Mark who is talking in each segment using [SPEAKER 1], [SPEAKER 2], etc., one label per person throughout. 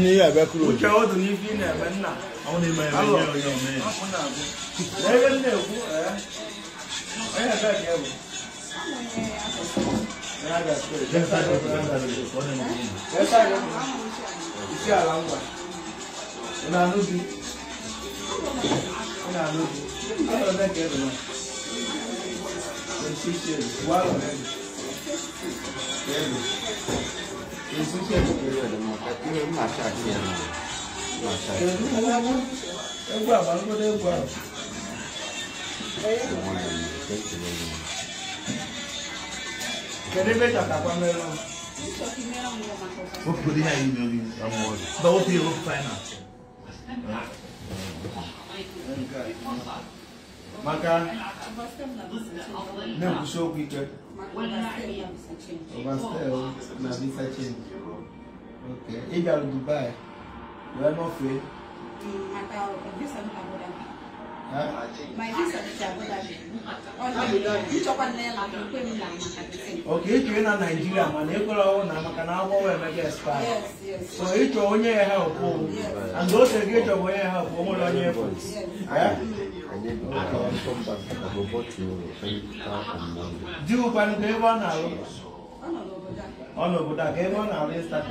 [SPEAKER 1] ní ẹ̀bẹ́ kúrò. ó jẹ́ ó dùn ní bí ní ẹ̀bẹ́ nà. àwọn lè máa ẹ̀bẹ́ yẹ ọyọ mi. lẹ́yìn ní èkó ẹ̀ ẹ̀yìn ẹ̀bẹ́ kẹ́ wò. Iṣẹ́ àlàǹgbà. Ìnà àlóbi. Ìnà àlóbi. Àwọn ọ̀dọ́ kẹ́rù náà. Ìṣiṣẹ́ wà lọ́rẹ́ mi. 你是不是一个月的嘛？一没拿下去我来，我来，我 maka na kusho kwike overstay na visa change okay ị bịara dubai wee nọfee oke ịchọ na naijiria mana ekwere ọnwụ na maka na agwọ emega spa so ịchọ onye ya help and ose gị ịchọ bụ onye help o nwere onye efu di ụkpanụ ka ebe ọ na alụ ọ n'obodo a ka ebe ọ na-arụ ịstatị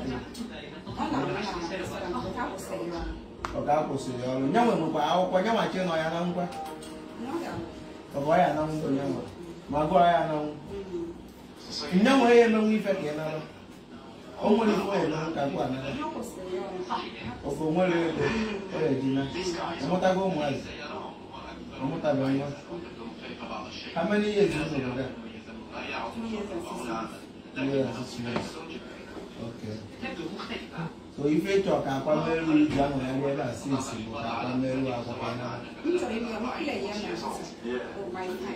[SPEAKER 1] ọ ga-akwụsịrị ọrụ nye nwe nwekwa akwụkwọ nye machi nọ ya na ngwa ọgọ ya na ngwa nye nwe ma gụọ ya na ngwa nye ya emenwe ife ka ị nara o nwere ife ya emenwe ka gụọ nara ofe o nwere ego ọ ya ejina ọ ụmụazị ومتابعين How many years is it there? Two years and six months. Yeah, six months. Okay. So if you talk about Meru, Jamu, and Weda, six, you talk about Meru, Akapana. Nítorí mi, àwọn kúlẹ̀ yẹn náà sọ, ò máa ń tàn.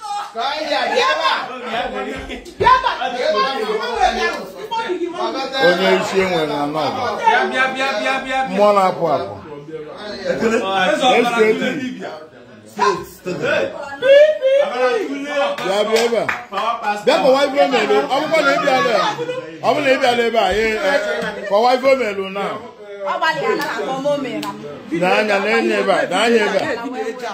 [SPEAKER 1] onye isi enwere na nọba mmụọ na-apụ apụ bịa bịa ebe a bịa kọwa ife omelu bụkwa na ịbịa ebe a e, ọ bụ na ịbịa ebe a kọwa ife omelu na n'anya na-enye ebe a n'anya ebe a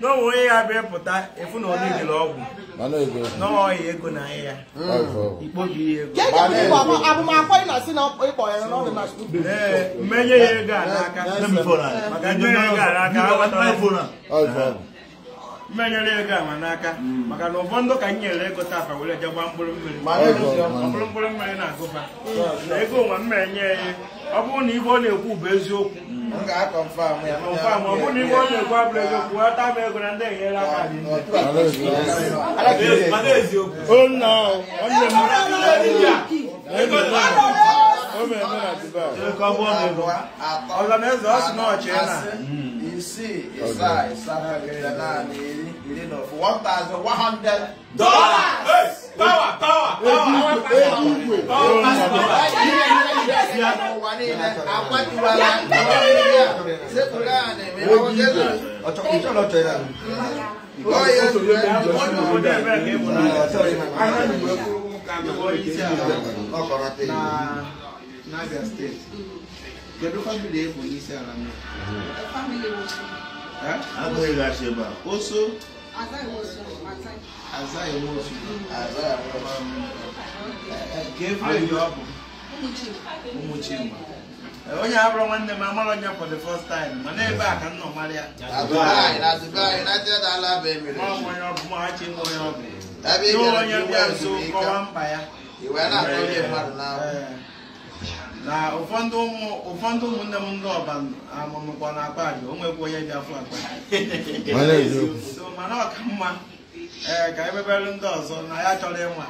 [SPEAKER 1] n'onwe onye ya bịa pụta efu na ọ niile ọgwụ n'ọhịa ego na ahịa ikpobi ego ee mmenye ya ego a n'aka maka ndị onye ego a n'aka ha gbatara mmenyere ego ama n'aka hmm. maka na ụfọdụ ka m nyere ego tafa were je gba mkpụrụ mmiri mkpụrụ mkpụrụ mmiri na-agụba hmm. na ego nwa mmenye ya ọ bụrụ na ife ọ na-ekwu bụ eziokwu kọnfam na ife ọ na-ekwu abụrụ eziokwu ghọta m ego na ndị enyela aka ọzọ na eze ọ sị na na isii ịsaa ịsaa na iri na ofu one thousand power. Power, power ya. Apatiwa la ìwádìíyà sẹ́kùnlá osu. Aza iwu osu. Aza iwu osu. Aza iwu osu. ụmụ onye abụrụ nwanne m amara onye for the first time mana ebe a ka m nọ mara ya maọbụ onye ọbụ machi nwe onye ọbụ n'ụlọ onye bịa nso kọwa mkpa ya na ụfọdụ ụmụnne m ndị ọba amụmụkwa na akpa aja o nwekwa onye bịa fụ akpa so mana ọka mma ee ka emebere ndị ọzọ na ya chọrọ ịnwa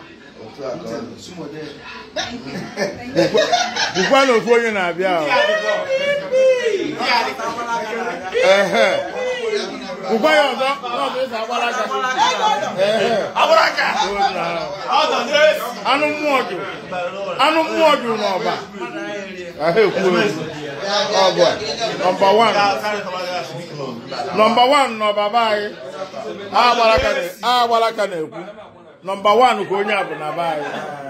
[SPEAKER 1] bụkwa na ofu onye na-abịa bụkwa ya ọzọ e anụ mmụọ jụ anụ mmụọ jụ n'ọba nọmba wan nọmba wan n'ọba be anyị agbara aka na-ekwu nọmba wan ka onye a bụ na be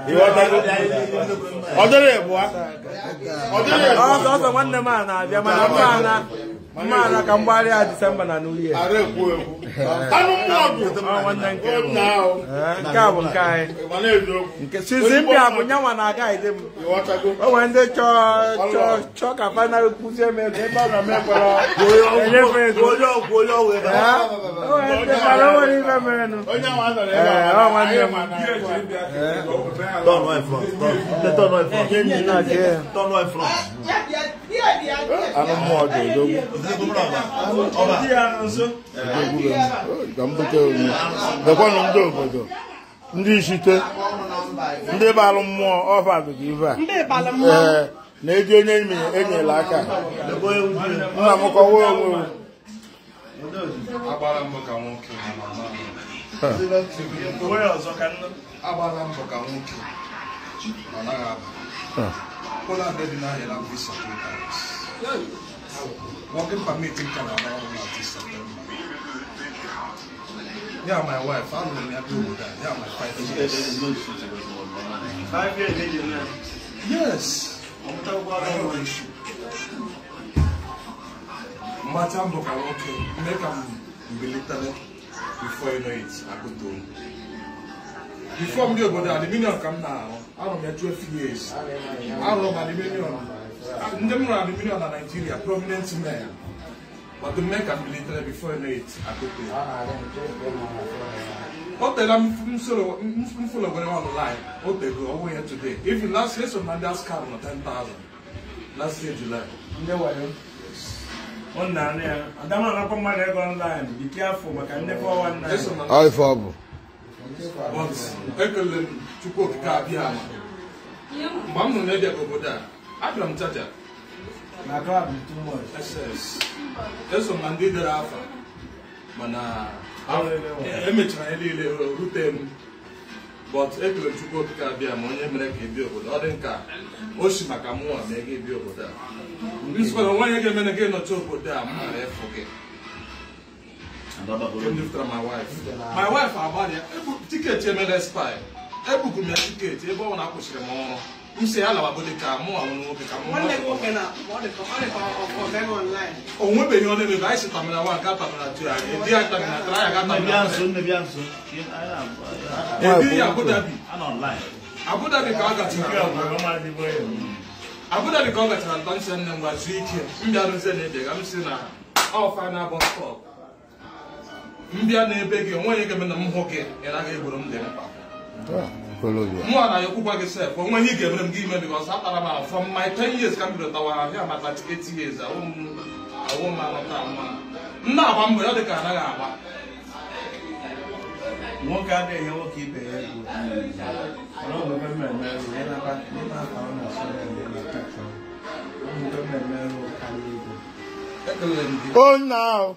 [SPEAKER 1] anyị ọ dịrị abụọ mara ka mgbagharị a disemba na new year eh, nke a bụ nke anyị sizi mbịa bụ nyanwa na aga ide ndị chọọ ka final kụzie m ego ebe m ndị mara eh, Turn right front. Turn anụ mmụọ ga-edogbu dekwanụ ndị obodo ndị ishite ndị balụ mmụọ ọfagogo ife a na-eji onye imi enyela aka nna m kọwa onwe m Nicola Working permit in Yeah, my wife. I don't know Yeah, my five years. Five years, Yes. before you know it. Before arọ m ya 12 years arọ m adiminion ndị m rụrụ adiminion na Nigeria prominent man. but the man can be military before late akote o tere m soro m folo were online o tego ọwụ ya today even last year so Nadia scam na 10,000 last year July ndị wayo ọ na-anị ya adamana akwa mmadụ ego online bi careful maka ndị 419 ọ ife ọ bụ but m chukwu okike abịa ama mgbe m nụrụ na edebe obodo a abịara m chacha eso m ndị dere afa mana emechara e ya niile rute m but ekele chukwu okike abịa ma onye mere ka ebi obodo ọ dị nka o si maka mụnwa ma ego bịa obodo a nweghị ga-eme na gị nọcha obodo a m mara ịfụ gị lifter my wife my wife agbalịa tiketi emela expire ebuku ya tiketi ebe ọ na-akwụsịrị m ọrụ m si ka mụ nwa ka o ọ gachara nta nsị nne m gwa ike m bịa rụzie na ede ga m si na mbịa n'ebe gị onwe gị na m hụ gị ị naghị egboro m dị mkpa mụ na ya okwukwa gị sef onwe ihe ị ga-emere m gị ime bikos atara m ahụ from my ten years ka m bido ahịa maka eight years ahụ m mma nna na-agba ya dị ka anaghị agba nwoke adịghị nwoke ibe ya egwu Oh,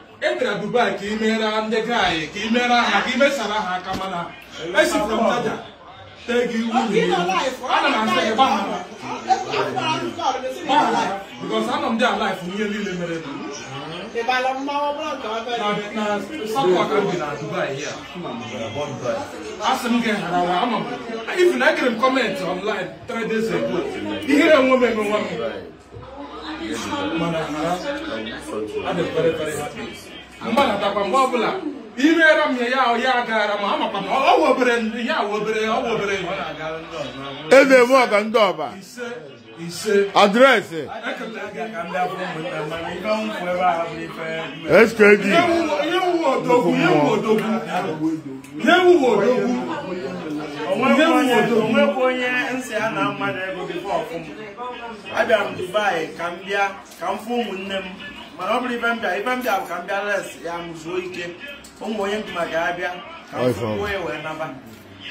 [SPEAKER 1] e bịara Dubai ka ị meere ndị gaanyị ka ị meere ha ka ị mesara ha aka mana esi from Jaja tee gị iwu ana m asị gị gbahara gbahara bikos anọ m dị alife ihe niile mere na satọ ka bi na Dubai ya asị m gị harawa anọ m ifu na ekere m online three days ago ihere enwe m emenwe m
[SPEAKER 2] mana hara adị very very happy
[SPEAKER 1] mgbadatakwa mgbe ọbụla imeere m ya ya agara ma amakwa na ọwụ obere ya awụ obere ọwụ obere eze m ọga ndị ọba adreesị skd onwekwa onye nsị a na mmadụ ego gị ọfụm abịara m dubai ka m bịa ka m fụ ụmụnne m mana ọ bụrụ ibe m ibe m bụ ka mbịa bịa res ya m ike ụmụ onye ndụma ga-abịa ka m ya wee naba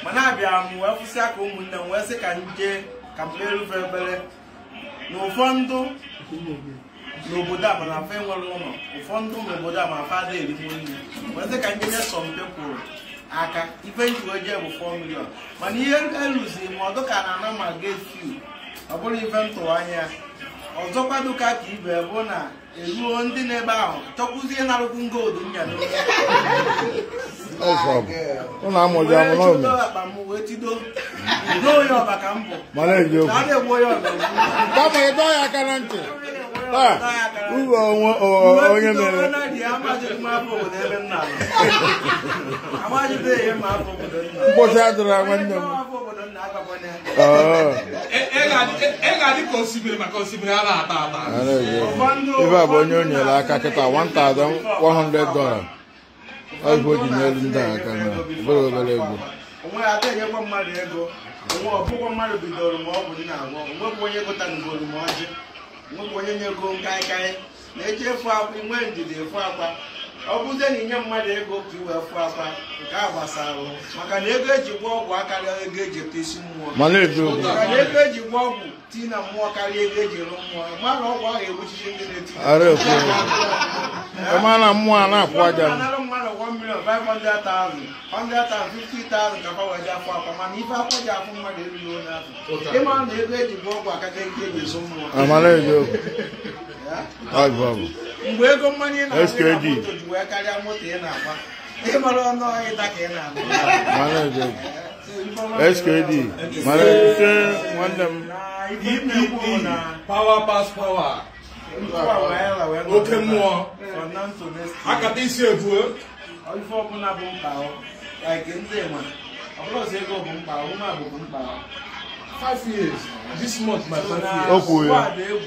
[SPEAKER 1] mana abịa m wee kwụsị aka ụmụnne m wee sị ka nje ka m kperufe na ụfọdụ n'obodo a mana afọ enwere ụlọ ụfọdụ n'obodo a ma afọ ada erigbo nri wee sị ka m jee nye sọmpe kwuru aka ife njigo jee bụ 4 milion mana ihe eruziri ma ọdụ ka na ana ma get ọ bụrụ ife m anya ọzọkwa dụka ka ibe bụ na eruo ndị na-ebe ahụ chọkwuzie narụkwu ngoodu akpa onye ọba ka na-egbu onye ọba aka ntị onye mere mkpọchi adịra nwanne m e adị ka a ata ata bụ onye o nyere aka kịta 1100 dola ọgwụ ji n'elu ndị aka na o obere ego onwe ata mmadụ onwe bidoro ma ọ bụ nna agwọ onwebụ onye ọjị onye na-eji efu akwa inwe ndidi efu akwa ọ bụzie na inye mmadụ ego ka iwe fụ nke a gbasara maka na ego eji ọgwụ akarịa ego eji ete isi mmụọ maka na ego eji ọgwụ tii na mmụọ karịa ego eji rụ mmụọ mara ọgwụ ahụ ndị na-eti mana mmụọ a na-akwụ aja mmadụ million ka fawa ji afọ mana ọgwụ mgbe ego mmanya na wee karịa moto ị na-agba ịmara ọnụ ịta ka ị na-agba skd mara nwanne m dpp power pass power oke mmụọ akata isi ebuo e? ife ọbụla bụ mkpa like ndị ma ọbụlọzi ego bụ mkpa ụmụ abụ mkpa 5 years this month my 5 years.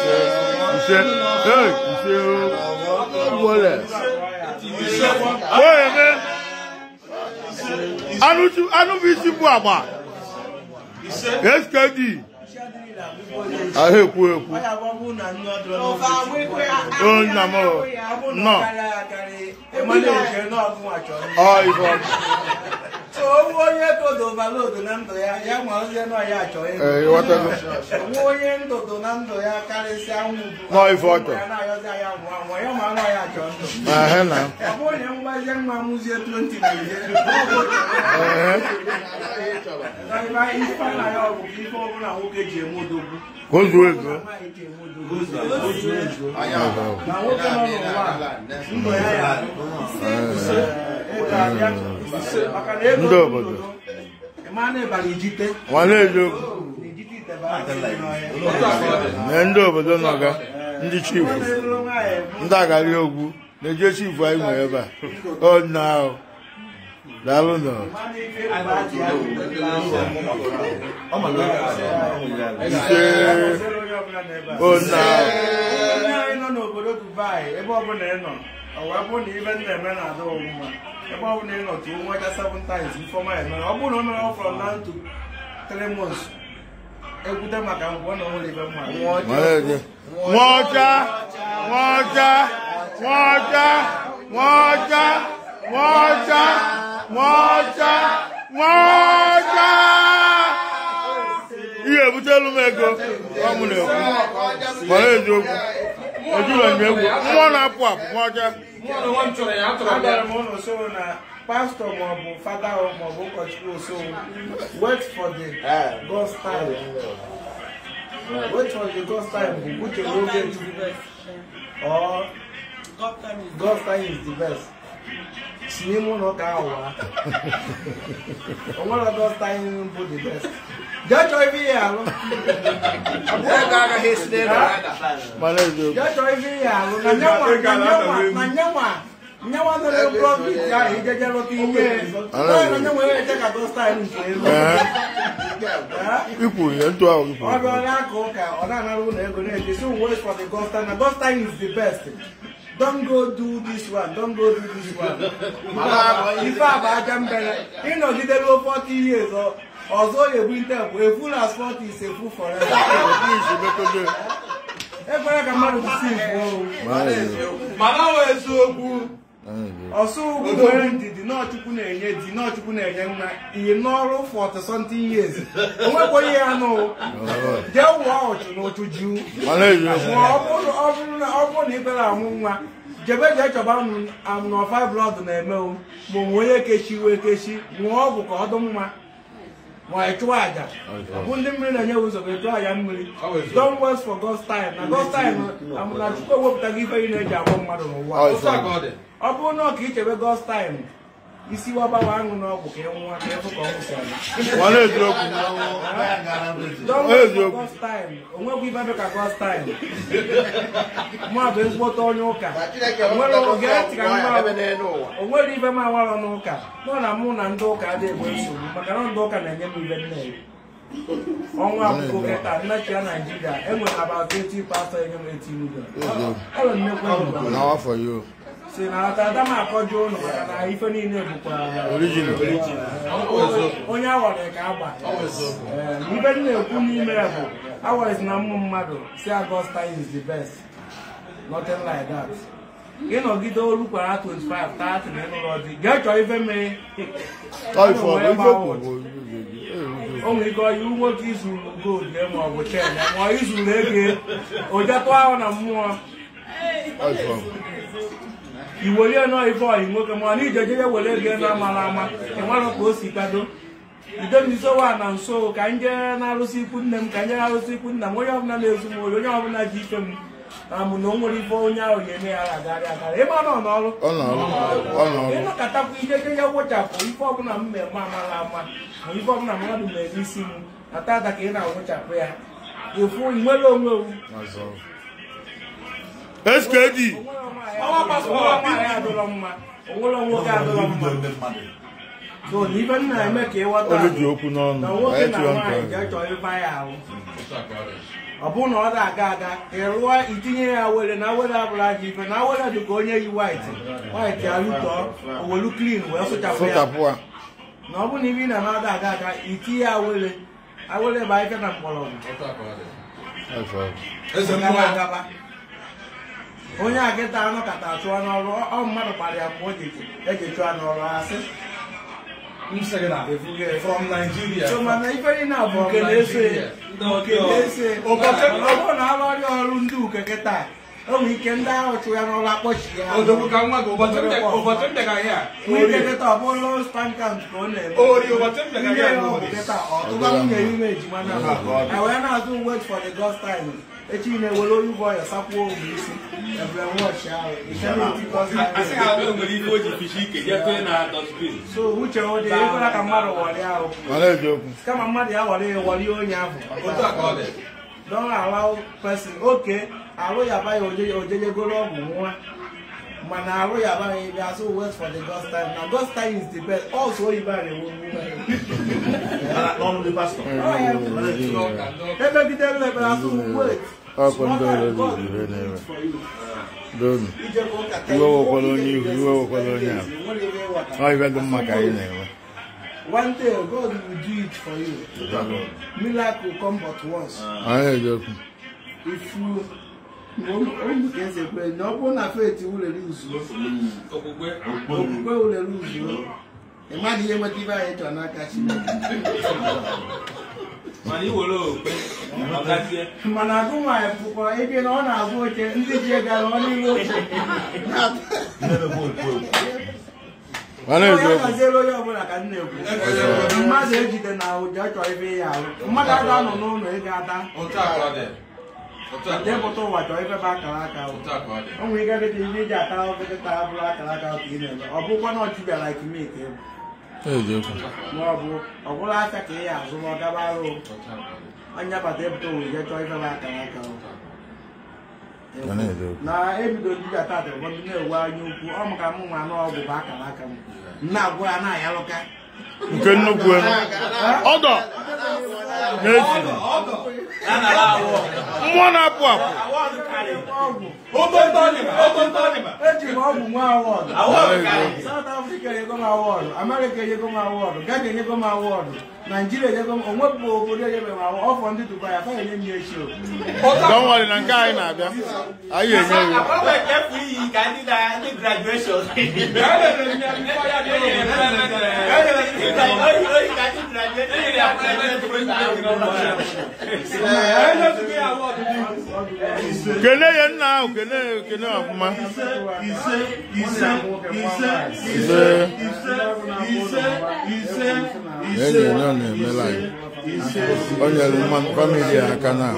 [SPEAKER 1] Michel, hey, Michel, voilà. Ouais, mais. À nous, à nous, ici, pour moi. Qu'est-ce qu'elle dit? Ahé, pour eux. Oh, non, non. owó onye kodo baloodo na ndụ ya ya ma ozie nọ ya achọ nwa onye ndodo na ndụ ya karịsịa nwụ ya na-ayọzi anya nwụọ anwụ ya ma nwa ya achọ ndụ ọ bụ onye mgbazie nwa mụzie 20 na ihe ọbụla nwoke ji eme odogwu ozu ezu na nwoke nọ n'ụwa ndụ ya ya ndị obodo na ndị obodo nọga ndị chifu ndị agari ogwu na-eje chifu anyị nwere ebe a ọdịna ahụ daalụ nọ ise ọdịna ahụ ọ wee bụrụ na ibe ndị na-eme na-adị ọmụma ebe ọ bụla ị nọ tụọ nwa ga times ifeọma emere ọ bụrụ na o mere ọ na ntụ three months maka ngwa na ọhụrụ ibe mma nwaọcha nwaọcha nwaọcha nwaọcha nwaọcha nwaọcha nwaọcha ihe ebutelu m ego ọ na-ekwu mara eziokwu ojúlọ ìgbẹ́wò nwa na-apụ apụ nwa ọja agara m ụlọ soro na pastọ maọbụ fada maọbụ ụkọchukwu osowo wait for the god's time wait for the god's time bụ uche oge or god's time is the best si no ụlọ ụka ahụ wa o nwere god's time bụ the best Jojo Evirialo. Agora receberá. Maravilhoso. Jojo Evirialo. Nanhama, nanhama, nanhama. Nanhama não é o próprio já, ele já não tinha. Não, nanhama é já que gosta ele mesmo. É. Ipu, é tu ao ipu. Agora lá coca, ora na rua nego né, this one works for the gosta, na gosta is the best. Don't go do this one, don't go do this one. Mama, ifa ba jambele. Ino gidelo 40 years. Oh. ọzọ onye ebunite bụ efu na asfọltụ ise efu fọrọ ekwere ka mmadụ kwụsị ifu mana ọ eziokwu ọsọ ugwu nwere na-enye di na-enye n'ọrụ ya wụọ na ụchụ ọ bụrụ na amụ nwa jebe chọba na onye kechi ọgwụ ka ọ dị mma ma ị chụwa aja bụ mmiri na-enye ụzọ ga-echu aja mmiri don west for God's time na God's time na Chukwu ewepụtaghị ife ị na-eji agwọ mmadụ n'ụwa ọ bụrụ na ọ ka ichebe God's time isi wabawa aṅụ n'ọgwụ ka ị nwa ka ịfụ ka ọ nwụsịrị ibe ka gostin mmadụ ezigbote onye ụka onwere ibe m n'ụka nọ na mụ na ndị ụka adịghị egbe nsogbu maka na ndị ụka na-enye m ibe nne ọnwa akụkọ kịta nnachia naijiria enwere abatụ eti pastọ enye m eti si na atata m akọju ụlọ maka na ife niile bụkwa onye awara ka agba eh, ibe dị na-ekwu n'ime ya bụ awaris na mmụ mmadụ si Augusta is the best nothing like that gị nọgide olu kwara 25 30 na ịnụlọ chọọ ife mee o nwere ike ọyị nwoke izuru gold ma ọ bụ chen ma ahụ na mmụọ iwerie nọ ife ọyị nwoke ma na ije jeje were ego na amara ama ịmarọ ka o si kado idemisowa na nso ka nje na-arụsị ikwu nne m ka nje na-arụsị ikwu nna m onye ọbụla na-ezu m ori onye ọbụla ji ife m na mụ na o nwere ife onye ahụ ga-eme ya agarị agara ebe ọ nọ n'ọrụ ịnọkọtakwa ije ya wụchapụ ife ọbụla m mmemme amara ama ma ife ọbụla mmadụ mere isi m ata ada ka ị na-awụchapụ ya efu nwere onwe owu SKD ibe m na-eme ya ọ bụrụ na ọ na-aga aga ịrụọ itinye ya were na were abụla na were onye yi waịtị waịtị arụtọọ owelu klin wee ọ bụrụ na ị aga ya were na onye agịta anụ kata chụọ n'ọrụ ọ mmadụ kpara ya mgbe o ji eji e chụọ n'ọrụ asị from Nigeria mana na nke na-ese ọbụ na arụrịa ọrụ ndị uke kịta onwe ike ndị ahụ chụ ya n'ụlọ akpọchi ya nwike kịta ọ ka ọ na-eme ọtụba nwunye ime na wee na-azụ wait for the time echi na-ewere onye bụ ọya sakwuo ogbe isi ebere wọchị ahụ so uche ọ dị ka mmadụ warịa ahụ kama mmadụ ya warị warịa onye ahụ don allow oke arụ ya abaghị ojejegoro ọgwụ nwa mana arụ ya abaghị ebe asụ wait for the ghost time na ghost time is the best also oyibo a na-ewu emegidere ebere asụ wait akwa ndị ọrụ ire na-ere iwe wekwala onye iwe wekwala onye ahụ ọhịa dị mma ka anyị na-enwe One day God will do it for you. Miracle come but once. If you na ọ bụrụ na faith ulere okpukpe you uzuo ị maghị ihe nweta ibe anyị chọrọ n'aka mana agụ nwaanyị pụkwa ebe na ọ na agụ oche ndị ji egara ọnụ ilu oche aziere onye ọbụla ka nna ekwu mmadụ ejide na ụja chọọ ebe
[SPEAKER 2] ya ahụ mmadụ ada nọ
[SPEAKER 1] n'ụlọ ịga ada depụta ụwa chọọ ebe ba akara aka o nwere ike dị ihe iji ata oekta abụrụ akara aka ka ị na-eme ọ bụkwa na ọchịbịara ikimike bụ maọbụ ọbụla aka ka ị ya azụ ma ọ gaba arụ onye bata ebute owuye chọọ ifebe akara aka na ebido ndị ga tata ụfọdụ na-ewu anya ukwu ọ maka m nwa n'ọgwụ bụ akara aka m na-agwụ ya na-ayalụka nke nnukwu ọdọ n'efu mmụọ na-apụ apụ Zimbabwe mwa award. Award kali. South Africa yego ma award. America yego ma award. Ghana yego ma award. Nigeria yego obodo yego ma award. Off on the Dubai afa yenye mi esho. Don't worry na nka ai na abia. Ayi enye wi. Akwa ke free ka ndi na graduation. Kele ye nna kele kele akuma iṣẹ́ iṣẹ́ iṣẹ́ iṣẹ́ iṣẹ́ iṣẹ́ iṣẹ́ lẹ́yìn náà na-eme laị o nyere famili aka na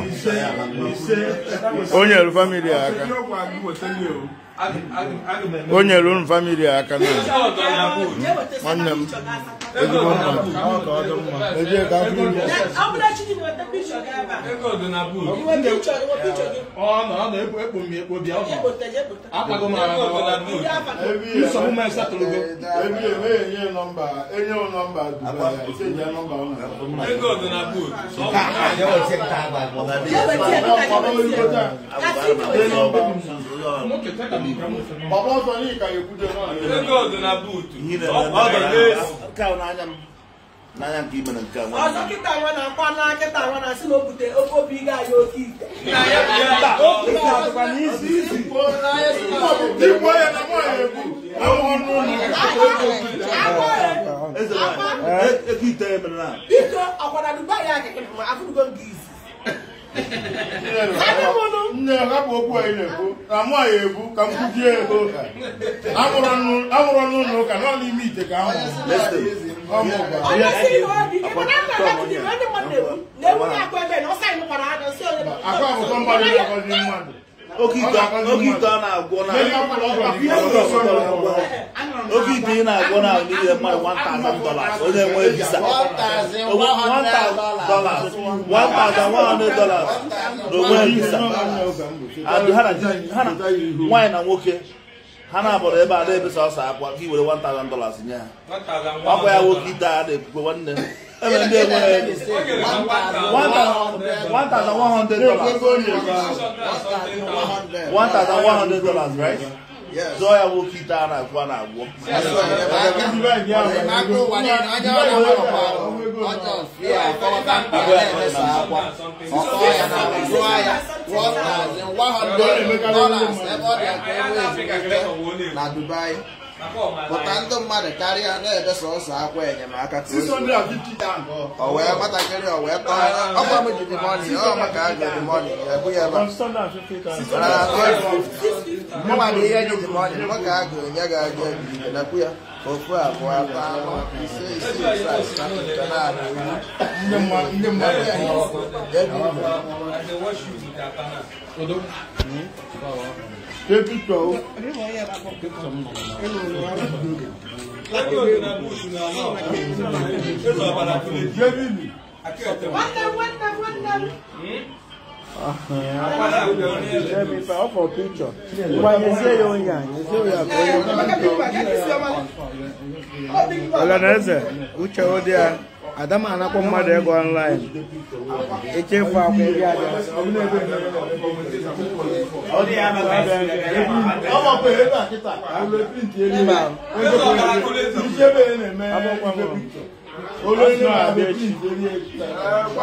[SPEAKER 1] o nyere famili aka o nyere unu famili aka na nwanne m ezigbo mma ejee ka afọ enye nọmba dubaeji nọmba n'anya nke ime na nke i ọzọ kịta nwa na-akwa na kịta nwa na-asị na o oke obi ga anyị oke ite biko ọkwara dubai ya akịkị ma nke izi nne hapụ okwu anyị na-ekwu na mụ anyị ekwu ka m kwuchie ego ọnụ ụlọ ụka nọ ime ite ka ahụ akụ abụtọ mmadụ na-agọzi mmadụ oke ite a na-agwọ oke ị na-agwọ na ahụ niile mmadụ dollars onye nwee visa 1100 dollars na visa nwaanyị na nwoke ha na-abọrọ ebe a na-ebesa ọsọ akwa ka i were 1000 dollars nye ha ọkwa ya nwoke ite a na nwanne One ndé one thousand one hundred dollars one thousand one hundred dollars right. Yes. So I Zoya wo kita ara kwa na agwo. Na Dubai. pụta ndụ mmadụ karịa na-ede sọsọ akwa enyemaka ka o wee matakịrị o wee tọọ ọkwa m ji dimoni ọ maka a ga dimoni ebu ya ebe mụma na ihe ji dimoni mụ ka a ga-enye gị aga na ya ofu abụọ atọ anọ ise ise ise asatọ ite na-abụ ndị mmadụ ya ebi ibe pepitọ Jẹ́bìlì. Wọ́n lé wọ́n lé wọ́n ọ gbanyezie ya onye a ọlanaeze uche ụdị a adama anakpọ mmadụ ego ọnlaịn echefu akwụ ndị abịa